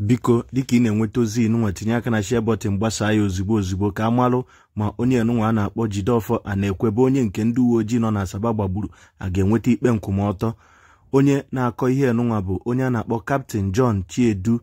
biko dịka ị na-enweta ozi nụnwa tinye aka na share button ya ozigbo ozigbo ka a malụ ma onye nụnwa a na-akpọ jideofọ a na-ekwebe onye nke ndị uwe ojii nọ na Asaba gbagburu a ga-enweta ikpe nkwụmọtọ onye na-akọ ihe nụnwa bụ onye a na-akpọ Captain John Chiedu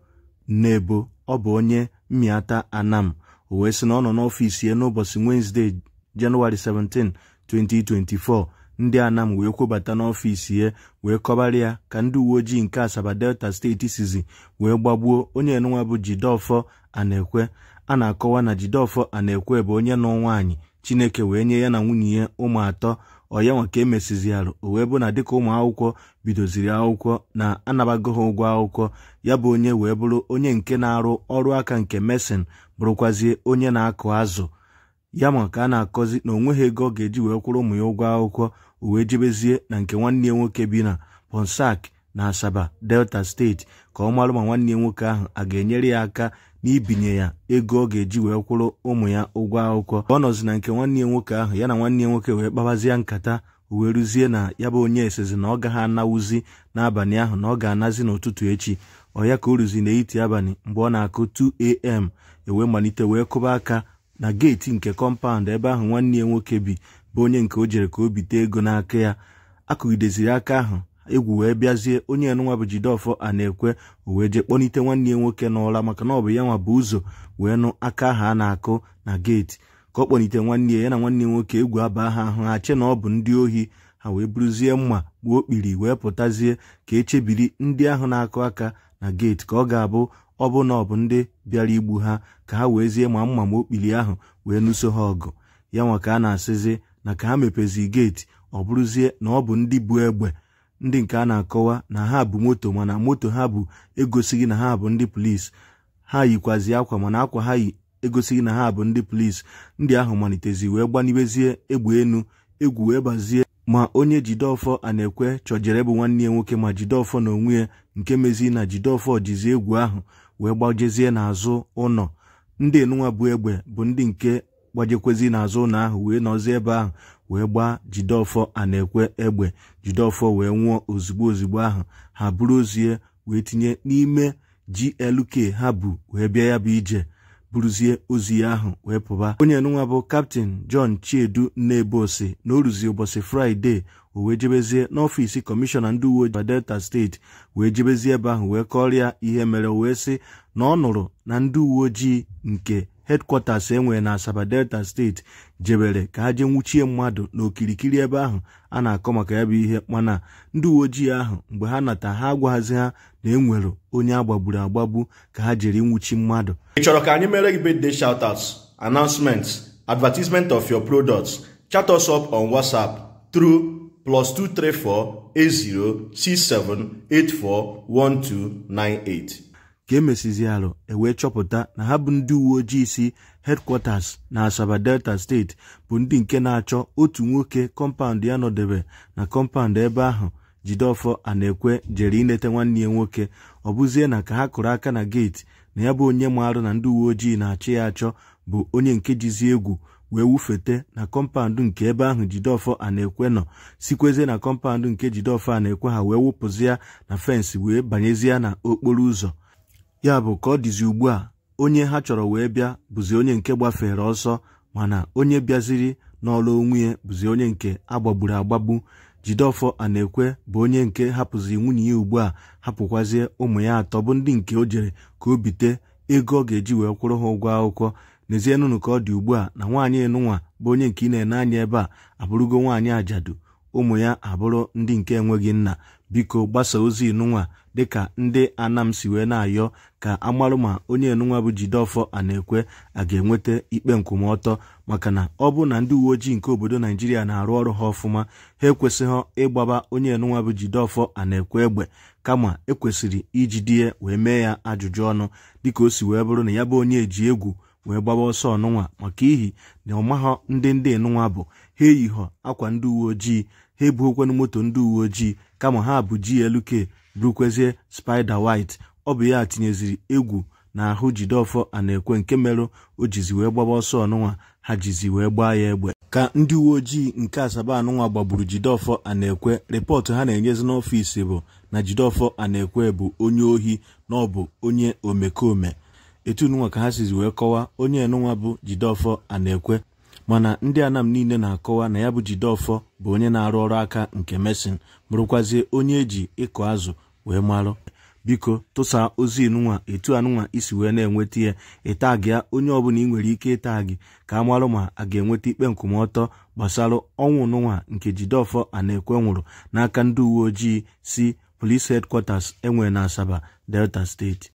naebo ọ bụ onye Mmiata Anam o wee sị na ọ nọ n'ọfiisi ya n'ụbọchị Wednesday Jenụwarị 17 2024 ndị anam wee kwobata n'ọfịs ya wee kọbara ya ka ndị uwe ojii nke asaba delta steeti sizi wee gbagbuo onye enụnwa bụ jidofọ anekwe a na-akọwa na jidofọ anekwe bụ onye nọ nwaanyị chineke wee nye ya na nwunye ya ụmụ atọ ọyanwa ka emesiziarụ o wee bụ na dịka ụmụ akwụkwọ bidoziri akwụkwọ na anabago ụgwọ akwụkwọ ya bụ onye wee bụrụ onye nke na-arụ ọrụ aka nke mesin bụrụkwazie onye na-akụ azụ ya ma ka a na-akọzi na onweghị ego ọ ga-eji wee kwụrụ ụmụ ya ụgwọ akwụkwọ uwe jebezie na nke nwanne ya nwoke bi na Ponsak na Asaba Delta steeti ka ọ marụ ma nwanne ya nwoke ahụ a ga-enyere ya aka n'ibinye ya ego ọ ga-eji wee kwụrụ ụmụ ya ụgwọ akwụkwọ ka ọ nọzi na nke nwanne ya nwoke ahụ ya na nwanne ya nwoke wee kpabazie nkata uwe ruzie na ya bụ onye esezi na ọ gaghị anawuzi n'abalị ahụ na ọ ga-anazi n'ụtụtụ echi ọ ya ka o ruzi n'etiti abalị mgbe ọ na-akụ 2am ewee malite wee kụba aka na geeti nke kọmpaụnd ebe ahụ nwanne ya nwoke bi bụ onye nke o jere ka o bite ego n'aka ya akụgideziri aka ahụ egwu wee bịazie onye enụnwa bụ Jideofor a na-ekwe o wee jee kpọnite nwanne ya nwoke n'ụra maka na ọ bụ ya nwa bụ ụzọ wee nụ aka ahụ a na-akụ na geeti ka ọ kpọnite nwanne ya ya na nwanne ya nwoke egwu aba ha ahụ ha che na ọ bụ ndị ohi ha wee buruzie mma gbuo okpiri wee pụtazie ka echebiri ndị ahụ na-akụ aka na geeti ka ọ ga-abụ ọ bụ na ọ bụ ndị bịara igbu ha ka ha weezie ma mma ma okpili ahụ wee nụso ha ọgụ ya nwa ka a na-asịzi na ka ha mepezi geeti ọ bụrụzie na ọ bụ ndị bu egbe ndị nke a na-akọwa na ha bụ moto mana moto ha bụ egosighị na ha bụ ndị polisi ha yikwazi akwa mana akwa ha yi egosighị na ha bụ ndị polisi ndị ahụ malitezi wee gbanibezie egbe enu egwu wee bazie ma onye Jideofor Anekwe chọjere bụ nwanne ya nwoke ma Jideofor na onwe ya nke mezi na Jideofor jizi egwu ahụ wee gbajezie n'azụ ụlọ ndị enunwa bụ egbe bụ ndị nke gbajekwezi n'azụ ụlọ ahụ wee nọzi ebe ahụ wee gbaa Jideofor Anekwe egbe Jideofor wee nwụọ ozugbo ozugbo ahụ ha bụrụ ozie wee tinye n'ime GLK ha bụ wee bịa ya bụ ije buruzie ozi ahụ wee pụba onye nụnwa bụ kaptin jọn chiedu nnebosi na o ruzie ụbọchị fraịde o wee jebezie n'ọfịs kọmishọna ndị uwe ojii delta steeti wee jebezie ebe ahụ wee kọrịa ihe mere o wee sị na ọ nụrụ na ndị uwe ojii nke hedkwọtas enwere na Asaba Delta steeti jebere ka ha jee nwuchie mmadụ n'okirikiri ebe ahụ a na-akọ maka ya bụ ihe mana ndị uwe ojii ahụ mgbe ha nata ha agwaghazi ha na enwere onye agbagburu agbagbu ka ha jere nwuchi mmadụ ị chọrọ ka anyị mere gị birthday shoutouts announcements advertisement of your products chat us up on WhatsApp tru plus 234 8067 ka emesizi alụ ewee chọpụta na ha bụ ndị uwe ojii si headquarters na Asaba Delta steeti bụ ndị nke na-achọ otu nwoke kọmpaụnd ya nọdebe na kọmpaụnd ebe ahụ jideọfọ a na-ekwe jere inete nwanne ya nwoke ọ bụzie na ka ha kụrụ aka na geeti na ya bụ onye maarụ na ndị uwe ojii na-achị ya achọ bụ onye nke jizi egwu wee wufete na kọmpaụndụ nke ebe ahụ jideọfọ a na-ekwe nọ sikwezie na kọmpaụndụ nke jideọfọ a na-ekwe ha wee wụpụzi na fensị wee banyezie na okporo ụzọ ya bụ ka ọ dịzi ugbu a onye ha chọrọ wee bịa bụzi onye nke gbafere ọsọ mana onye bịaziri n'ọlụ onwe ya bụzi onye nke agbagburu agbagbu na Anekwe bụ onye nke hapụzi nwunye ya ugbu a hapụkwazie ụmụ ya atọ bụ ndị nke o jere ka o bite ego ọ ga-eji wee kwụrụ ha ụgwọ akwụkwọ n'ezie nụnụ ka ọ dị ugbu a na nwaanyị nụnwa bụ onye nke ị na-ene anya ebe a abụrụgo nwaanyị ajadu ụmụ ya abụrụ ndị nke enweghị nna biko gbasa ozi nụnwa dịka ndị anam si wee na-ayọ ka amarụ ma onye enunwa bụ ana-ekwe a ga-enweta ikpe nkwụmọtọ maka na ọ bụ na ndị uwe ojii nke obodo Naijiria na-arụ ọrụ ha ọfụma ha ekwesịghị ịgbaba onye enunwa bụ ana-ekwe egbe kama ekwesịrị ijide wee mee ya ajụjụ ọnụ dịka o si wee bụrụ na ya bụ onye eji egwu wee gbaba ọsọ ọnụnwa maka ihi na ọmaghọ ndị ndị nụnwa bụ ha eyihọ akwa ndị uwe ojii ha ebughokwanụ moto ndị uwe ojii kama ha bụ GLK burukwezie spider white ọ bụ ya tinyeziri egwu na ahụ jideofọ a ekwe nke merụ o jizi wee gbaba ọsọ ọnụnwa ha jizi wee gbaa ya egbe ka ndị uwe ojii nke asaba anụnwa gbagburu jide a na-ekwe rịpọtụ ha na-enyezi n'ọfịs bụ na jideofọ a ekwe bụ onye ohi na ọ bụ onye omekome etu nụnwa ka ha sizi wee kọwaa onye enụnwa bụ ana ekwe mana ndị anam niile na-akọwa na ya bụ Jideofor bụ onye na-arụ ọrụ aka nke mesin bụrụkwazie onye eji ịkụ azụ wee marụ biko tụsa ozi inụnwa etu anụnwa isi wee na-enweta ya ịta gị onye ọbụla ị nwere ike ịta gị ka a marụ ma a ga-enweta ikpe nkwụmọtọ gbasara ọnwụ nụnwa nke ana ekwe nwụrụ n'aka ndị uwe ojii si Police Headquarters enwe na Asaba Delta Steeti